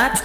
that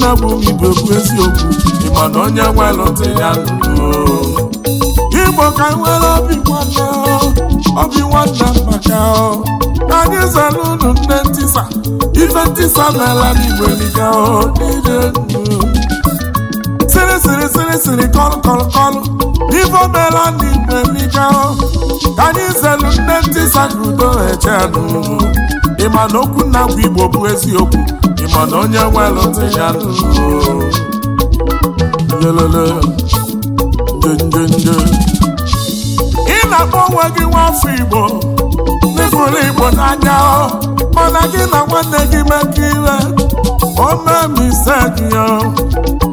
nna bụ igbo bụ eziokwu ịma na onye welụta ya ndụ igbo ka e nwere obi nwanne obi nwanne maka anyị zara unu nne ntisa ife ntisa n'ala n'igbo eliga n'ile siri siri siri siri kọlụ kọlụ kọlụ ife omela n'igbo eliga ka anyị zelu nne ntisa ka udo eche n'ụlọ ịma na okwu nna bụ igbo bụ eziokwu mana onye welụtụ ya ị na-akpọ onwe gị nwafọ Igbo n'ịfụrụ Igbo n'anya mana gị na nwanne gị mekọ ire o mee misteki ya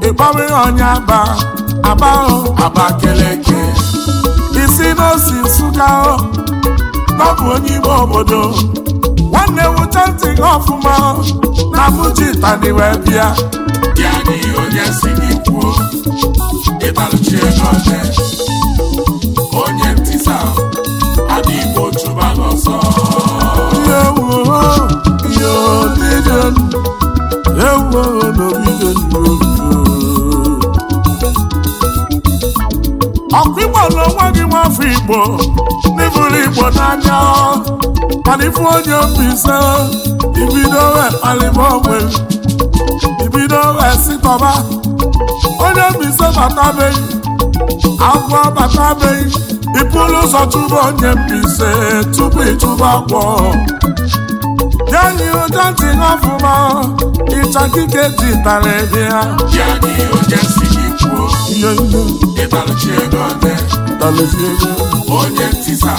ịkpọrọ ihe onye aba aba Abakeleke isi n'osi Nsụka ọ bụ onye ime obodo nwanne wucha ntị gị ọfụma na mụjitani wee bịa ya n'ihi onye si gị kwuo ego onye ntịsa ọkụ igbo na onwe gị nwafọ igbo n'ịbụrụ igbo n'anya mana onye mbise ibido wee kpalịba ogbe ibido wee onye mbise batabeghị agwọ batabeghị ịpụlụ ụzọ tụba onye mbise tupu ịtụba agwọ yanyi ụja ji ọfụma kike ji tara ebe ya ihe ihe ụtalezi ego onye ntisa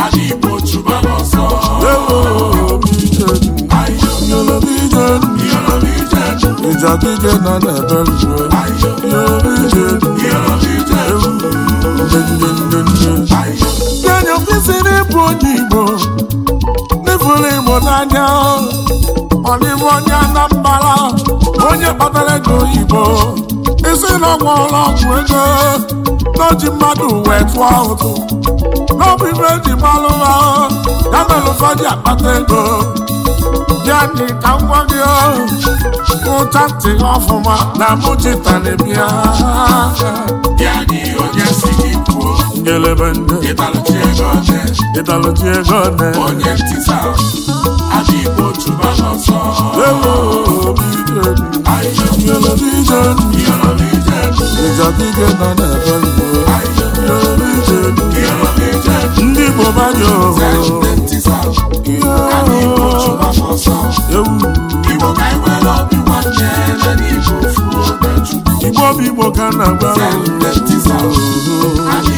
ala igbo chụba n'ọsọ ịjadide na na-ebere denya kwesịrị ịbụ onye igbo n'ifuru igbo n'anya ọdịbụ onye anambara onye kpatara ego oyibo isi na ọgwụ ọrụ ọgwụ ego n'oji mmadụ wee tụọ ụtụ n'ọbụ ibe ji gbalụ ha ya mere ụfọdụ akpata ego ya dị ka m gwa gị ụta ntị ọfụma na mụchitara bịa ya dị onye si gị Mele bende Italo tiejo jesh Italo tiejo Onye Aji otu bajo so Lelo bide Aije Mele bide Mele bide Ija bide na Mele bide Mele bide Ndi Aji Ewu bi ni bi Aji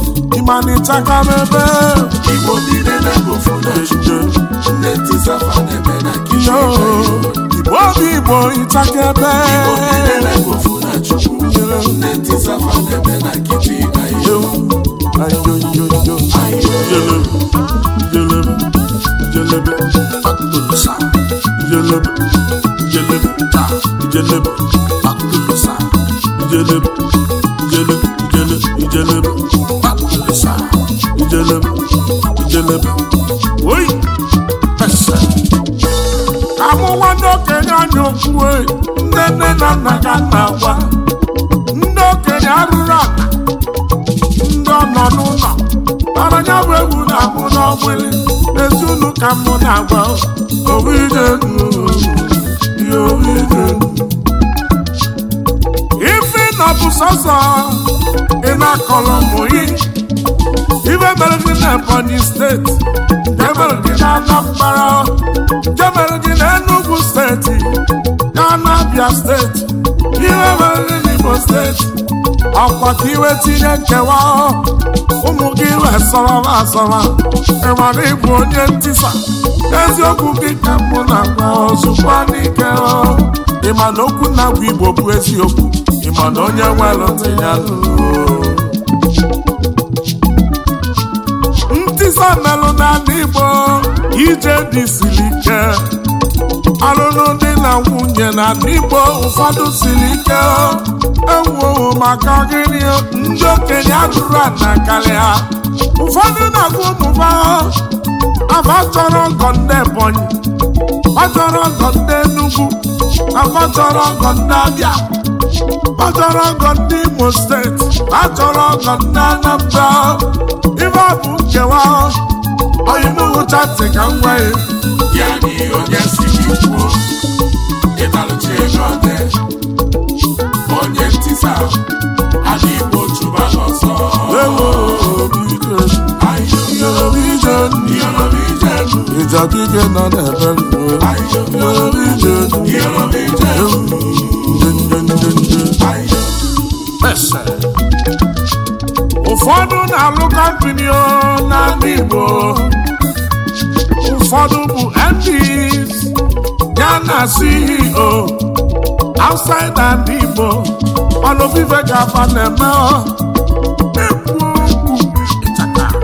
ọgbanịchaka n'ebe Igbo niile na-ebo funachi Nneti Zafa na-eme na kichin Igbo obi Igbo ịchaka ebe Igbo niile na-ebo funachi Nneti Zafa na-eme na kichin Jelebe, jelebe, jelebe, jelebe, jelebe, jelebe, Esa, Jelem, Jelem, Oi, Esa. Amụwa ndị okenye anya okwu e, nne nne na nna ga na-agwa. Ndị okenye arụrụ ala, ndị ọnọ n'ụlọ, bara anya bụ egwu na amụ n'ọgbịrị, ezi unu ka mụ na-agwa, obi dị ndụ, ihe obi dị ndụ. Ife na sọsọ, ị na-akọlọ mụ ihe. ibe mere gị na Ebonyi steeti nke mere gị nke mere na Enugu steeti na Anabia steeti iwe mere gị steeti ọkwa ka iwe tinye nkewa ụmụ gị wee sọrọba asọba ịmara ịbụ onye ntisa eziokwu gị ka mụ na-agwa ozugbo n'ike na okwu na-agwa Igbo bụ eziokwu ịma na onye nwere ntị ya melụ n'ala Igbo ije dị siri ike alụlụ dị na nwunye n'ala Igbo ụfọdụ siri ike ewu maka gịnị ndị okenye adụrụ ana karịa ụfọdụ na akwụ ụmụba afa chọrọ ọgọ ndị Ebonyi ọ chọrọ ọgọ ndị Enugu afa chọrọ ọgọ ndị Abịa chọrọ ọgọ ndị Imo steeti achọrọ ọgọ ndị Anambra ibe ọ bụ nkewa oyinuhụchatị ka m gwa ya onye ntisa na n'ọsọ nọ ndị Igbo ụfọdụ bụ MPs ya na CEO outside na ndị Igbo ọnụ vive gava na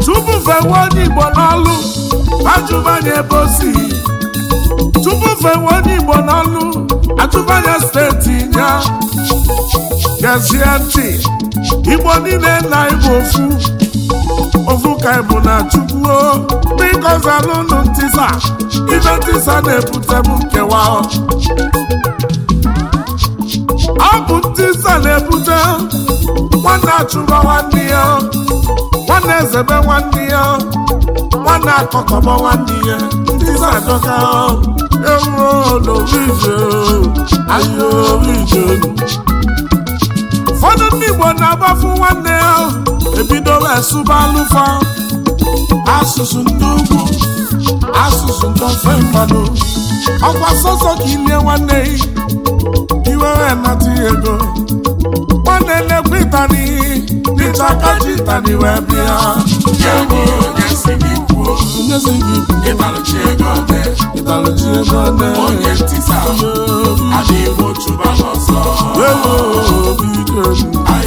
tupu fewe onye Igbo n'ọlụ ajụbanye ebe osi tupu fewe onye Igbo n'ọlụ atụbanye steeti ya gezie ntị Igbo niile na Igbo ofu ofuka bụ na chukwu biko zalụnụ ntisa ibe ntisa na-ebute m nkewa ọ bụ ntisa na-ebute nwanne achụba nwanne ya nwanne ezebe nwanne ya nwanne akọkọba nwanne ya ntisa adọka ewuo n'orije ahịa orije ụfọdụ ndị Igbo na-agbafu nwanne ya ebidola esụbalụfa asụsụ ndị ugwu asụsụ ndị ofe mmadụ ọkwa sọsọ ka ilie nwanne iwere nata ego nwanne na ịtani ịchaka ji ịtani wee bịa onyezi gị ego ego ọdị onye ntịsa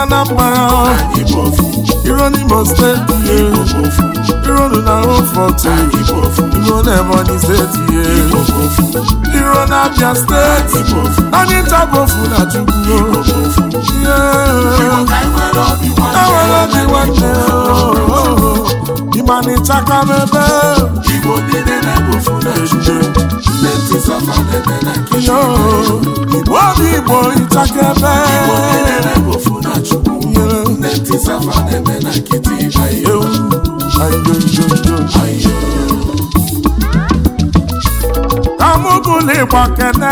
Anambra Iro n'Imo steeti Iro nụ na Iro na Ebonyi steeti ihe Iro na Abia steeti Anyị ntabofu na Chukwu Enwere obi nwanne Ịmanị chaka n'ebe Igbo niile na-ebofu na ejije Igbo obi ebe Chukwu nne na-eme na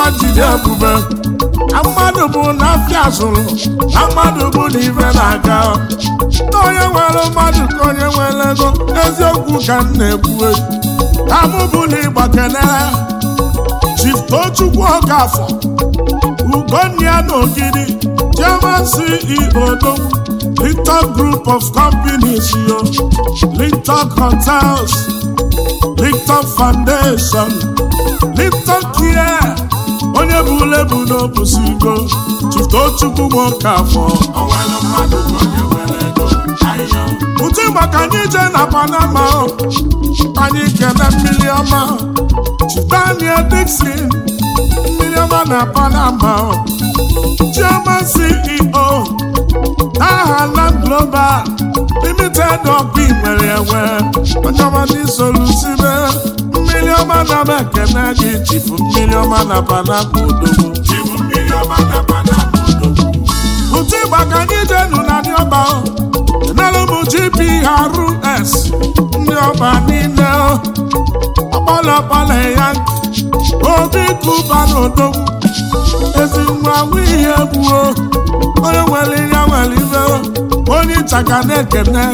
ayo jide ebube mmadụ bụ na afịa zụrụ na mmadụ bụ na ibe na-aga na onye nwere mmadụ ka onye nwere ego eziokwu ka m na ka mụ kene Chief Ugonia Nogidi, German CEO Dom, Group of Companies, yo, Linton Hotels, Linton Foundation, Linton Care, onye bụ lebu n'obusigo e Chiftochukwu nwoke afọ ụtụ maka anyị je na Panama anyị kene mmiri ọma Chidania Dixon na Panama chairman CEO aha Land Global Limited ọkụ nwere enwe onye solusibe mmiri ọma na mekene gị jibu mmiri ọma na panama odogwu ụtụ ịgbaka ka anyị jenu na ndị ọba enelum GPRS ndị ọba niile ọkpọlọkpọlọ ya obi kụba n'odogwu ezi nwa nwe ihe gbuo onye nwere ihe nwere ibe onye nchaka na-ekene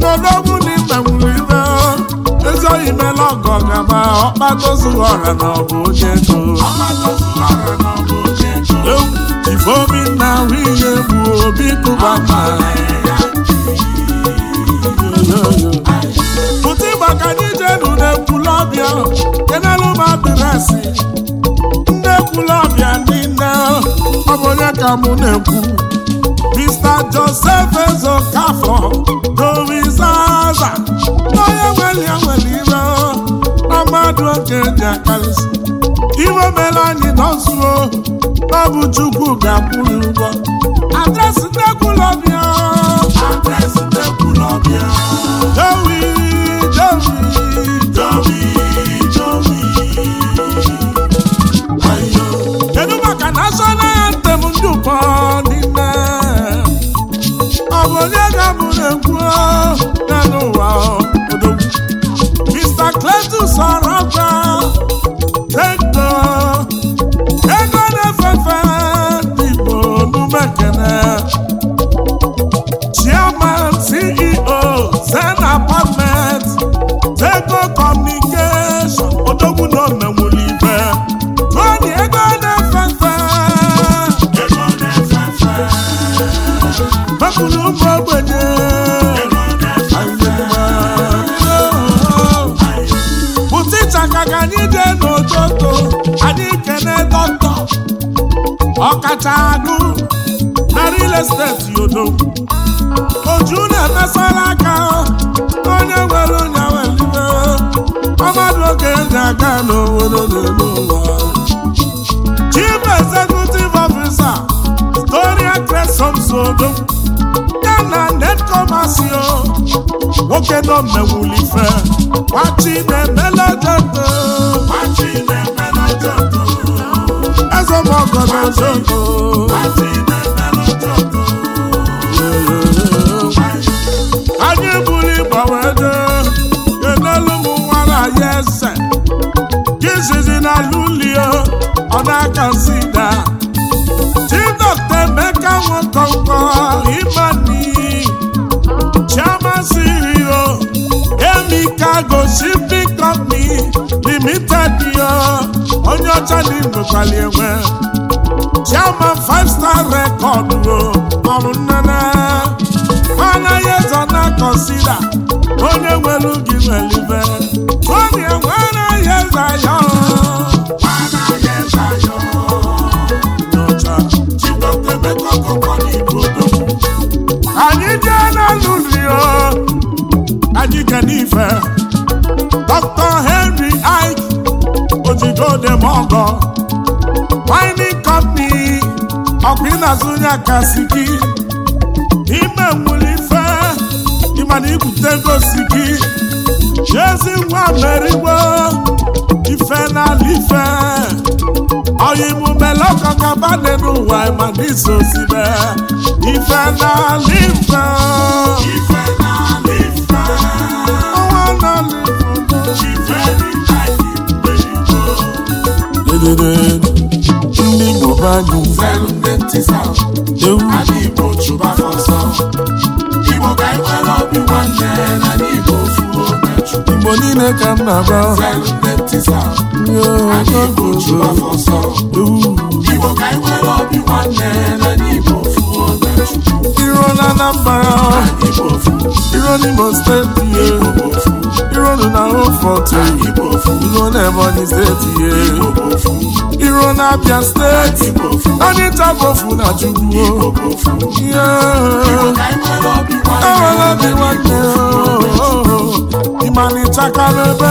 n'odogwu na ime nwere ibe ezi oyi mela ọgọ gaba ọkpatozuru ọra na ọbụ onye ego ifeobi na ahụ ihe gbuo obi kụba ma pụta ịgbaka n'ije nụ na ebulọbịa nderasị nne ndị ndị niile ọ bụ onye ka mụ na-ekwu Mr. Joseph Ezokafọ dorizaza n'onye nwere ya nwere ire na mmadụ oge dị akarịsị iwe mere anyị nọzuo ọ bụ Chukwu ga-akwụrụ ụgwọ adresị nne ọbịa adresị kwụrụ ụmụ ogbenye bụtịcha ka ka anyị n'ụtụtụ anyị dọkịta ọkacha agụ na real estate yodo oju na emesala aka onye nwere onye nwere ọmadụ oge ndị aga n'obodo n'elu ụwa chief executive officer Storia oke nọ mmewuli ife nwachi na-emela jodo eze mọgọ na jodo anyị buru ịgbanwedo enelu m nwara ya eze jizizi na lulio ọ na-aka sida chi dọkta emeka nwoke Chicago Shipping Company Limited onye ọcha na igwekwali enwe Chairman Five Star Record o ọrụ nnene anaghị ezo na onye nwere ugi na-azụ onye si gị ime nwere ife ị ịmana ibute gosi gị jezi nwa meriwo ife n'ala ife oyimumelekọkabane n'ụwa ịmana iso zibe ife n'ala ife ọnwa n'ala ife chụba anyụ Igbo ka anyị obi nwanne na n'Igbo fuo Igbo niile ka m na-agba ewu Igbo ka anyị obi nwanne na n'Igbo fuo iro na Anambra iro n'Imo steeti ye iro na Hofort iro na Ebonyi steeti ye na Abia steeti anyị tabofu na Chukwu enwere obi nwanne ịmanịchaka n'ebe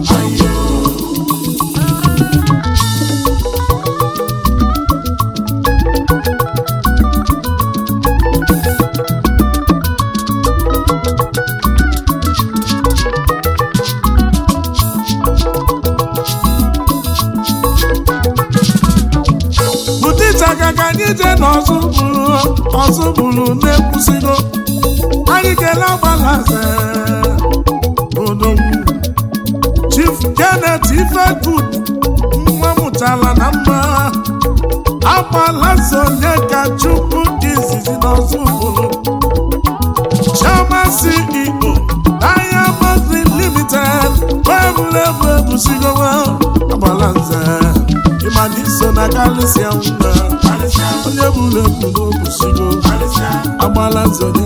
ije na ọzọ bụrụ ọzọ bụrụ na-ekwusigo anyị kele ọgbalaze odogwu Chief Janet Ifegood nwa mụtara na mma agbalaze onye ka Chukwu izizi na ọzọ bụrụ Chioma CEO Diamond Limited egwuregwu ebusigowa agbalaze ịmana iso na kalisia mma ụlọ ebube okwusigo agbala nzọ dị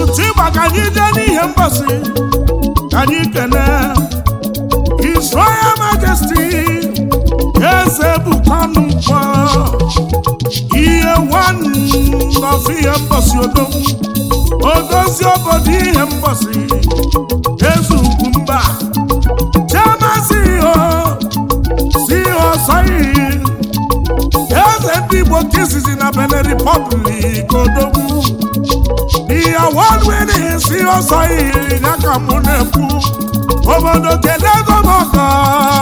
otu ịgba ka anyị jee n'ihe mgbasị ka anyị kene His Royal eze bụkwanụ ihe nwanọfụ ihe mgbasị odozi obodo ihe mgbasị izizi na Benin Republic odogwu ihe wọlwere si ọsọ iri ya ka mụ nekwu obodo kedu ego m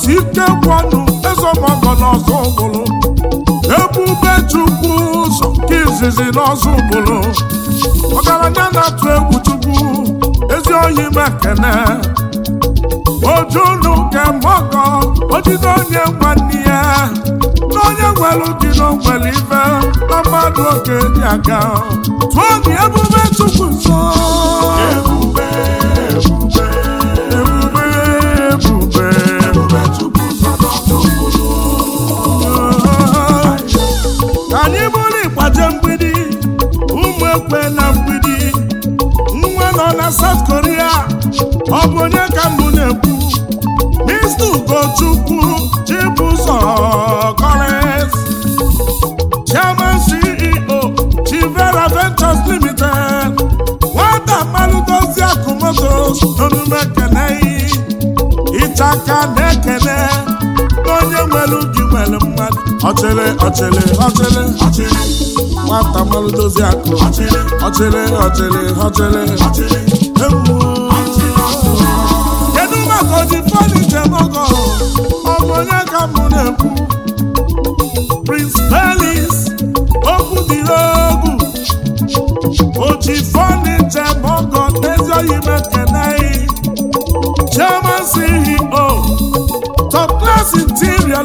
si ike kwanụ eze ọgbọgọ n'ọzọ ụbụrụ ebube chukwu ụzọ nke izizi n'ọzọ ụbụrụ ọgaranya na-atụ egwu chukwu ezi oyi mekene ojunu kemọgọ ojide onye nwanne ya na onye nwere dị n'ogwere ife na mmadụ oge dị aga tụọ dị ebube chukwu nso ebube ebube mgbidi ụmụ ekwe na mgbidi nwa nọ na South Korea ọ bụ onye ka mbụ na-ekwu ọchịrị ọchịrị ọchịrị ọchịrị nwata mmanụ dozi akụ ọchịrị ọchịrị ọchịrị ọchịrị ọchịrị ewu kedu maka oji fọniche mọgọ ọbụ onye ka m na-ekwu Prince Pelis okwu dị n'ogu oji fọniche mọgọ ezi oyi mekeneghị Chairman CEO Top Class Interior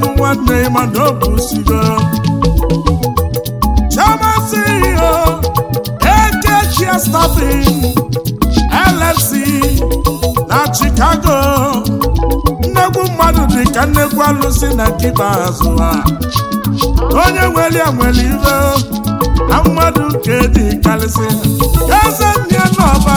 bụ nwanne ma ọ bụ sigo chamasị ihe ekechia stafin LFC na Chicago nnegwu mmadụ dị ka nnegwu alụsị na nkịta azụ ha onye nwere ya nwere ibe na mmadụ nke dị karịsị eze nne n'ọba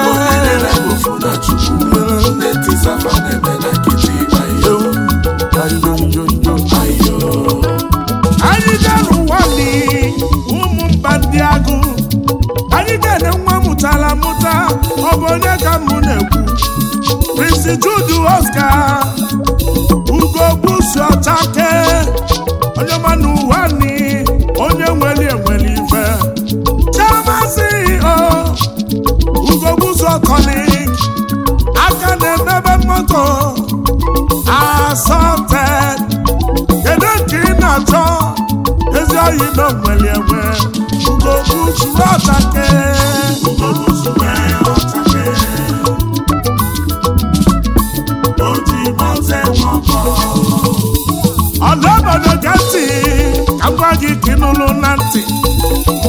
Jude Oscar n'ụlọ na ntị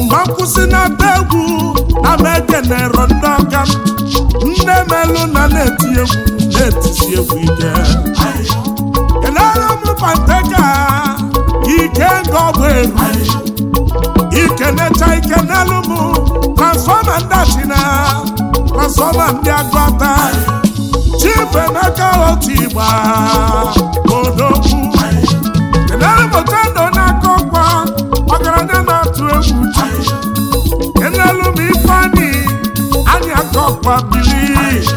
mgbe nkwụsị na-ata egwu ama ekenero ndị aka nne melụ na na-eti egwu na-etisi egwu ike kelere m ike nga ọbụ eru ikenecha ike n'elu m transfọma ndị achina transfọma ndị agụata chibuemeka otu igba odogwu kelere m na rock ma bili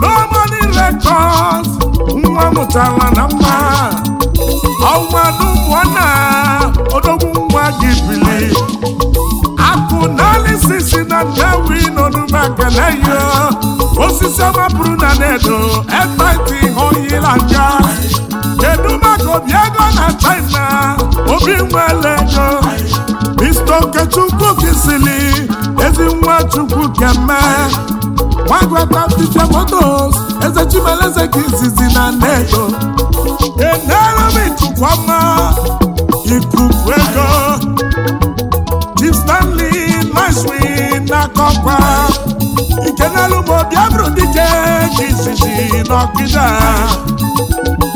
lomani nwa mụtara na mma ọnwanụ mụọna odogwu nwa gị bili akụ sisi na ndewi n'onume ekele yo osisi ọma bụrụ na nedo ekpenti oyila kedu maka obi ego na china obi ego ezi nwa chukwu keme nwagwata fichemotos eze chimeleze ka Kizizi, na nnedo enerem ọma, ikuku ego chief stanley naswin n'akọkwa ikenelugbo biabru dike ka izizi n'ọkịda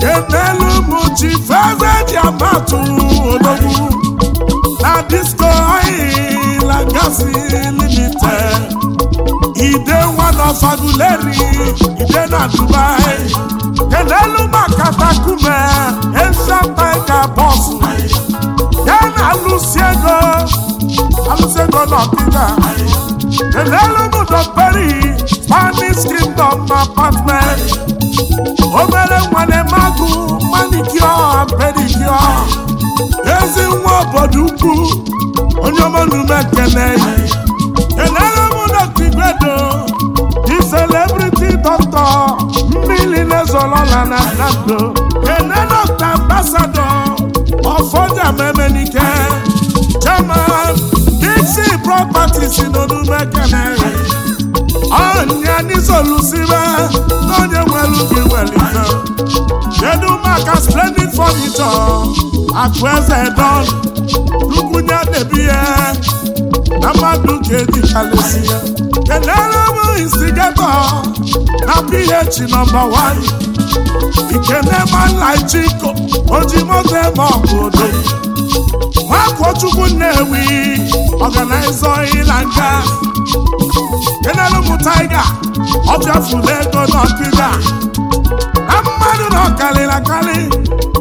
kenelu mụ chief eze ji amatu odogwu na disko gas limited e dey one of aguleri e na dubai kelelu maka takume esha tiger boss ya na alụsi ego alụsi ego n'ọkịta kelelu m dọkperi spanish kingdom apartment obere nwane magụ manicure pedicure ezi nwa obodo ukwu onye ọma nnume kene kenere m n'otigwedo di celebrity doctor mmiri na-ezolola na nando kene dọkta ambasadọ ọfọja memenike chairman dixi properties ekele. kenere ọnya n'isolusibe n'onye nwere nwelu nwere ike. kedu maka splendid furniture akụ eze don lukwunye debi ya na mmadụ ka edikalesi ya kenere m instigato na ph nọmba 1 ikenemanlaichiko oji moto eme ọbụdo nwakochukwu nnewi ọganaiza ịla nga kenere taiga ọbịafuru ego na ọkịga na mmadụ nọ ọkarịrị akarị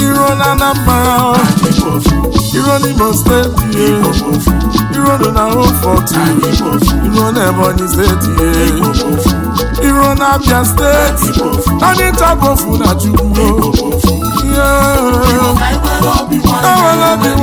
iro na Anambra iro na n'Imo steeti iro dị na Rufọt iro na Ebonyi steeti iro na Abia steeti anyị tabofu na Chukwu enwere obi nwanne